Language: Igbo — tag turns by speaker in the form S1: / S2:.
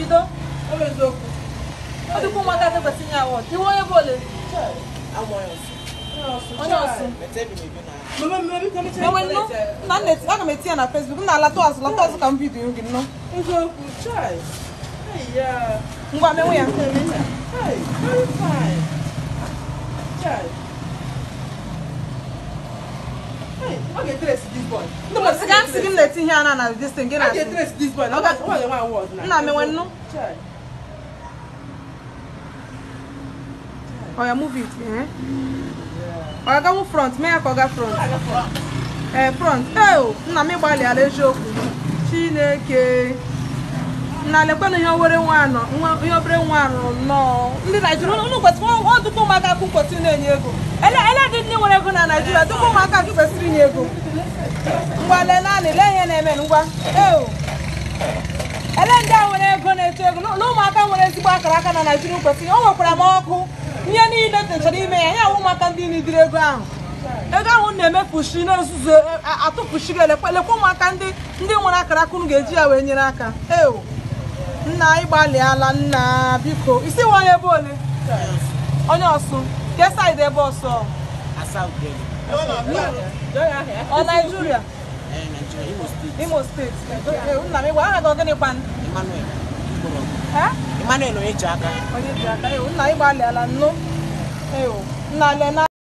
S1: bido ọ bụ eziokwu ọ dịkwa ụmụaka tebesi nye awọ tiwe onye bụ ole onye ọsụ aga m etinye na Facebook m na-alata azụ lata azụ ka m bido gị nnọọ ngwa menwe ya Okay, get trace this boy. No, but you can't see him letting here now this thing. get I Okay, trace this boy. Now that's what the one was now. Nah, me when no. Oh, yeah, move it. Eh? Yeah. Oh, I got front. Me, I got front. front. Eh, front. Eh, oh, na me bali ale shoku. Chineke. na lekwana ihe obere nwa rụrụ nnọọ ndị Naijiria unu kwesịrị ọ dụkwa ụmụaka akụ kwesịrị na-enye ego ele dị ndị nwere ego na Naijiria dụkwa ụmụaka akụ kwesịrị inye ego ngwa lee naanị, lee ihe na-eme ngwa ele ndị a nwere ego na-eto ego na ụmụaka nwere ezigbo akara aka na Naijiria kwesịrị o nwekwara m ọkụ ihe niile techara ime ya ya awụ ụmụaka ndị nidiri ego ahụ ego ahụ na-emefushi n'ozuzu e, atụfushiri elekwa elekwa ụmụaka ndị nwere akara akụnụ ga-eji ya wee nyere aka eo nna anyị gbalịala nna biko isi onye ebe ole onye ọsụ nke saịdị ebe ọsọ ọ naijiria eh, imo steeti eh, nna m ịgwa aha gị gịnị kwanụ Emmanuel onye ji aka eh, nna anyị gbalịala nnu nna le